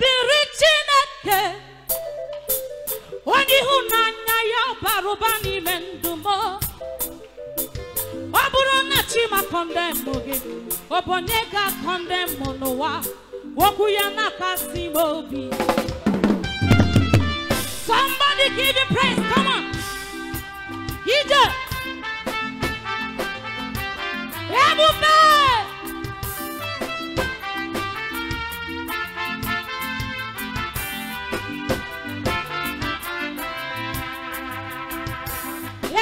dịrị Chineke onye ya bara ụba n'ime ndụ m ọ bụrụ na Chima kọndemụ gị ọ bụ onye ga ya na-akasi somebody give me praise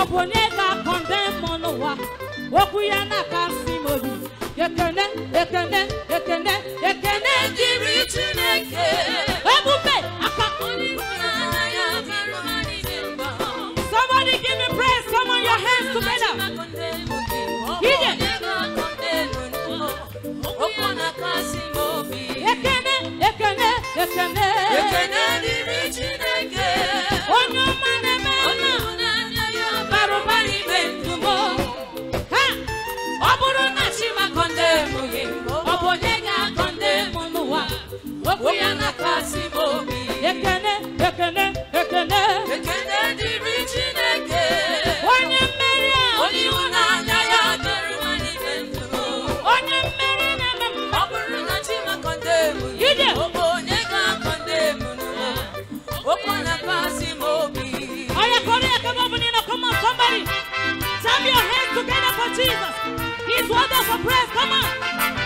oponega condemn monowa okuyana kasimodi ekene ekene ekene ekene jiri chineke ebube akakoni somebody give me praise come on your hands together Ije. Okuyana kasimodi ekene ekene ekene ekene Clap your hands together for Jesus. He's wonderful praise. Come on.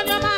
on your mind.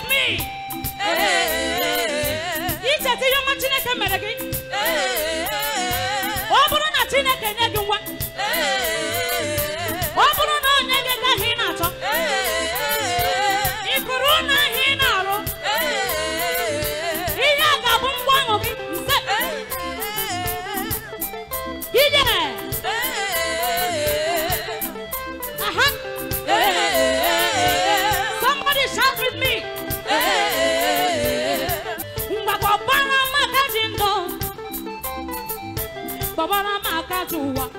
with me? ọma Chineke mere gị ọ bụrụ na Chineke nye gị nwa Baba na makatuwa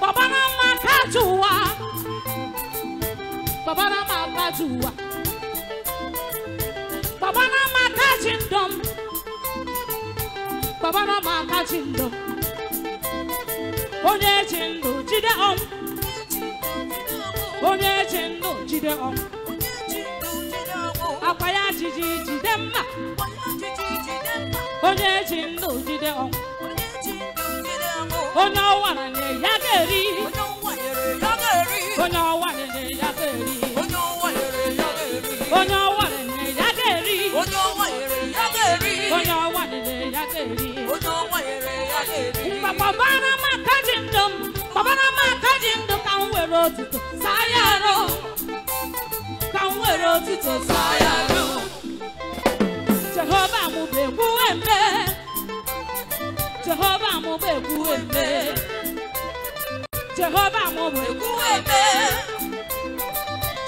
Baba na makatuwa Baba na makatuwa Baba na makachindom Baba Onye chindu jide om Onye chindu jide om Akwa ya jiji jide mma onye ji ndụ jide ọnwụ onye ọwa na ya ga-eri onye ọwa na ya ga-eri onye ọwa ya ga-eri onye ọwa ya ga-eri papa na maka ji ndụ m papa na maka ji ndụ ka m were otuto saa ya arụ ka m were otuto saa Jehovah Jehova mubekwu eme Jehova mubekwu eme Jehova mubekwu eme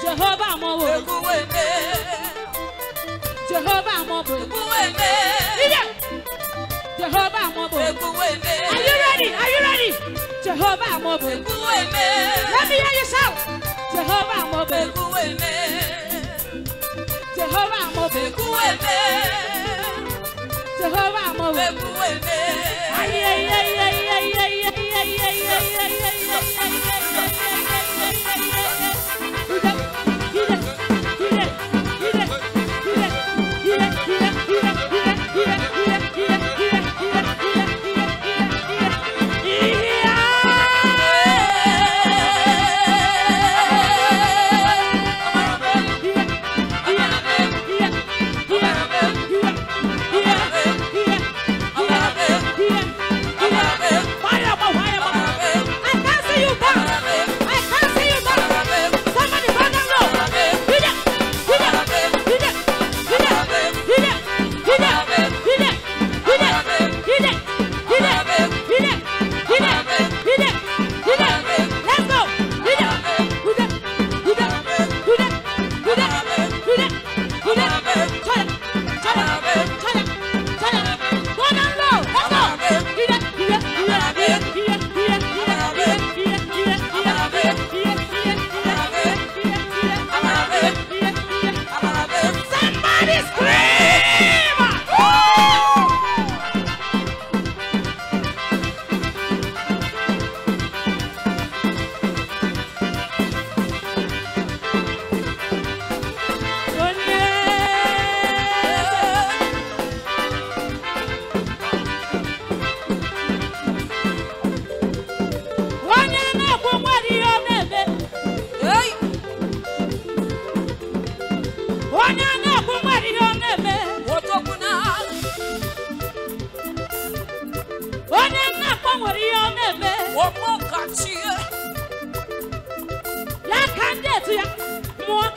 Jehova mubekwu eme Jehova mubekwu eme Jehova mubekwu eme Are you ready? Are you ready? Jehova mubekwu eme Let me hear you shout Jehova mubekwu eme Jehovah mo me, Jehovah mo me. Aye.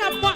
up.